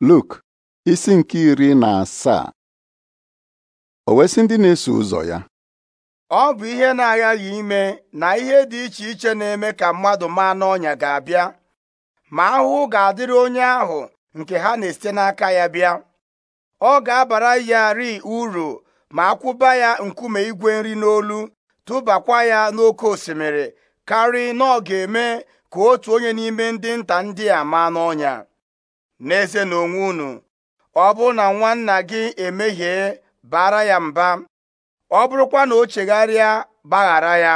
Luk isi nke iri na asaa o wesị ndị na-eso ụzọ ya ọ bụ ihe na-aghaghị ime na ihe dị iche iche na-eme ka mmadụ maa n'ọnya ga-abịa ma ahụhụ ga-adịrị onye ahụ nke ha na-esite n'aka ya bịa ọ ga-abara ya ri uru ma akwụba ya nkume igwe nri n'olu tụbakwa ya n'oké osimiri karị na ọ ga-eme ka otu onye n'ime ndị nta ndị a maa n'ọnya n'eze na onwe unu ọ bụrụ na nwanna gị emehie bara ya mba ọ bụrụkwa na o chegharịa gbaghara ya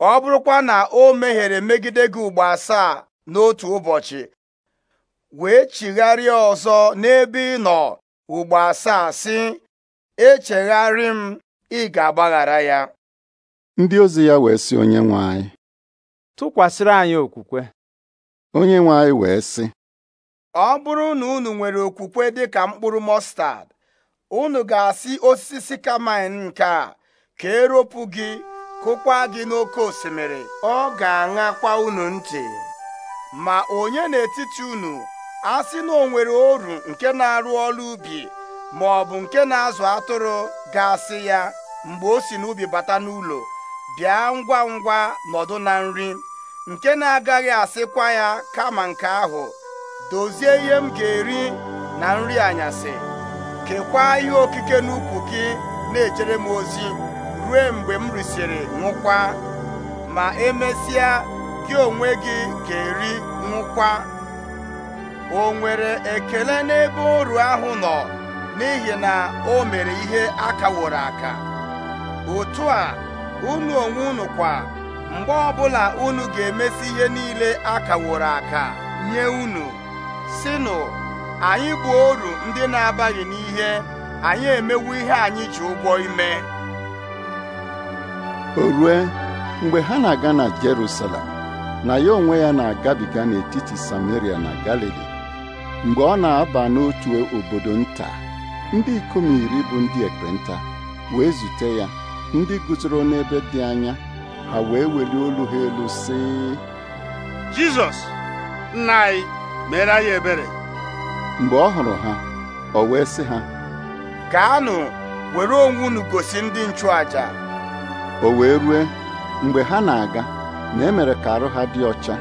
ọ bụrụkwa na o meghere megide gị ugbo asaa n'otu ụbọchị wee chigharịa ọzọ n'ebe ị nọ ugbo asaa sị echegharị m ị ga-agbaghara ya ndị ozi ya wee sị onye nwe anyị tụkwasịrị anyị okwukwe onye nwe anyị wee sị ọ bụrụ na unu nwere okwukwe dịka mkpụrụ mọstad unu ga-asị osisi sikamain nke a ka eropụ gị kụkwa gị n'oké osimiri ọ ga-aṅakwa unu ntị ma onye n'etiti unu asị na o nwere oru nke na-arụ ọrụ ubi ma ọ bụ nke na-azụ atụrụ ga-asị ya mgbe o si n'ubi bata n'ụlọ bịa ngwa ngwa nọdụ na nri nke na-agaghị asịkwa ya kama nke ahụ dozie ihe m ga-eri na nri anyasị kekwaa ihe okike n'ukwu gị na-ejere m ozi ruo mgbe m risịrị nwụkwa ma emesịa gị onwe gị ga-eri nwụkwa o nwere ekele n'ebe oru ahụ nọ n'ihi na o mere ihe akaworo aka otu a unu onwe unu kwa mgbe ọbụla unu ga-emesi ihe niile aka akaworo aka nye unu sịnụ anyị bụ oru ndị na-abaghị n'ihe anyị emewo ihe anyị ji ụgwọ ime o rue mgbe ha na-aga na Jerusalem na ya onwe ya na-agabiga n'etiti Samaria na Galili mgbe ọ na-aba n'otu obodo nta ndị ikom iri bụ ndị ekpenta wee zute ya ndị guzoro n'ebe dị anya ha wee welie olu ha elu sị Jizọs nna meere anyị ebere mgbe ọ hụrụ ha ọ wee sị ha gaanụ were onwe unu gosi ndị nchụàjà! o wee rue mgbe ha na-aga na emere ka arụ ha dị ọcha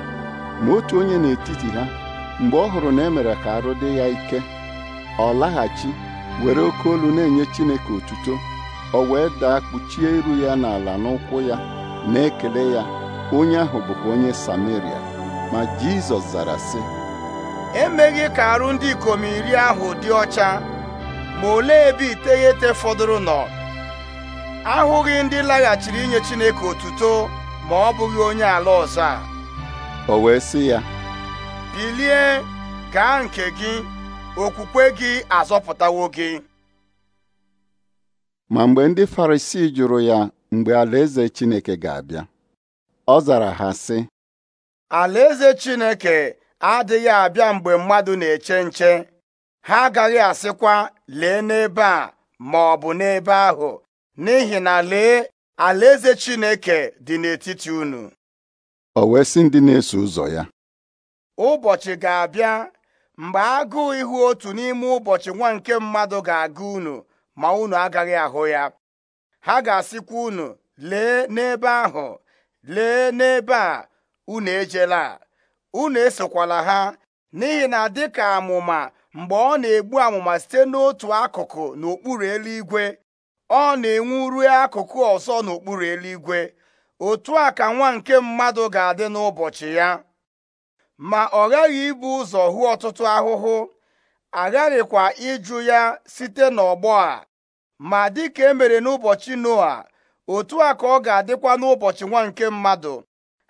ma otu onye n'etiti ha mgbe ọ hụrụ na emere ka arụ dị ya ike ọ laghachi were oke olu na-enye Chineke otuto o wee daa kpuchie iru ya n'ala n'ụkwụ ya na-ekele ya onye ahụ bụkwa onye Sameria ma Jizọs zara sị emeghị ka arụ ndị ikom iri ahụ dị ọcha ma olee ebe iteghete fọdụrụ nọ ahụghị ndị laghachiri inye Chineke otuto ma ọ bụghị onye ala ọzọ a o wee sị ya bilie gaa nke gị okwukwe gị azọpụtawo gị ma mgbe ndị Farisii jụrụ ya mgbe alaeze Chineke ga-abịa ọ zara ha sị alaeze Chineke adịghị abịa mgbe mmadụ na-eche nche ha agaghị asịkwa lee n'ebe a ma ọ bụ n'ebe ahụ n'ihi na lee alaeze Chineke dị n'etiti unu o wee sị ndị na-eso ụzọ ya ụbọchị ga-abịa mgbe agụụ ihu otu n'ime ụbọchị nwa nke mmadụ ga aga unu ma unu agaghị ahụ ya ha ga-asịkwa unu lee n'ebe ahụ lee n'ebe a unu ejela unu esokwala ha n'ihi na dịka amụma mgbe ọ na-egbu amụma site n'otu akụkụ n'okpuru eluigwe ọ na-enwu ruo akụkụ ọzọ n'okpuru eluigwe otu a ka nwa nke mmadụ ga-adị n'ụbọchị ya ma ọ ghaghị ibu ụzọ hụ ọtụtụ ahụhụ aghaghịkwa ịjụ ya site n'ọgbọ a ma dịka emere n'ụbọchị noa otu a ka ọ ga-adịkwa n'ụbọchị nwa nke mmadụ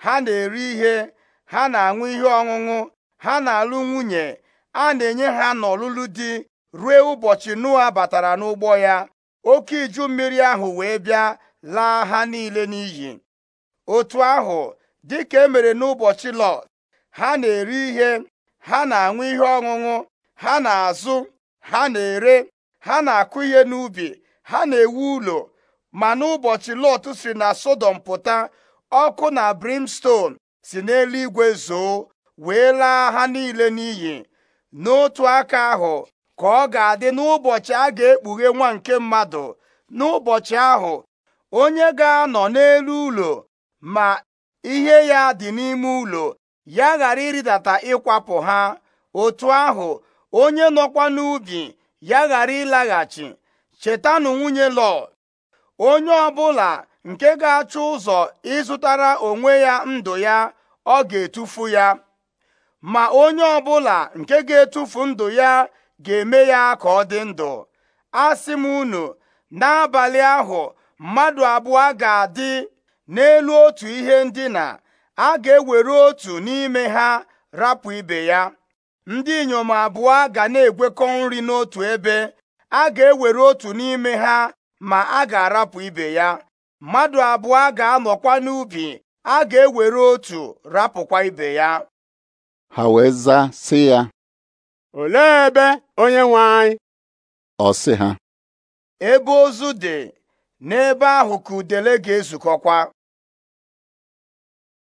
ha na-eri ihe ha na-aṅụ ihe ọṅụṅụ ha na-alụ nwunye a na-enye ha n'ọlụlụ di ruo ụbọchị Noa batara n'ụgbọ ya oke iju mmiri ahụ wee bịa laa ha niile n'iyi otu ahụ dịka emere n'ụbọchị Lọt ha na-eri ihe ha na-aṅụ ihe ọṅụṅụ ha na-azụ ha na-ere ha na-akụ ihe n'ubi ha na-ewu ụlọ ma n'ụbọchị Lọt si na Sodom pụta ọkụ na brimstone si n'elu igwe zoo wee laa ha niile n'iyi n'otu aka ahụ ka ọ ga-adị n'ụbọchị a ga-ekpughe nwa nke mmadụ n'ụbọchị ahụ onye ga-anọ n'elu ụlọ ma ihe ya dị n'ime ụlọ ya ghara ịrịdata ịkwapụ ha otu ahụ onye nọkwa n'ubi ya ghara ịlaghachi chetanụ nwunye lọ onye ọbụla nke ga-achọ ụzọ ịzụtara onwe ya ndụ ya ọ ga-etufu ya ma onye ọbụla nke ga-etufu ndụ ya ga-eme ya ka ọ dị ndụ asị m unu n'abalị ahụ mmadụ abụọ ga-adị n'elu otu ihe ndina a ga-ewere otu n'ime ha rapụ ibe ya ndị inyom abụọ ga na-egwekọ nri n'otu ebe a ga-ewere otu n'ime ha ma a ga-arapụ ibe ya mmadụ abụọ ga-anọkwa n'ubi a ga-ewere otu rapụkwa ibe ya ha wee zaa sị ya olee ebe onye nwe anyị ọ sị ha ebe ozu dị n'ebe ahụ ka udele ga-ezukọkwa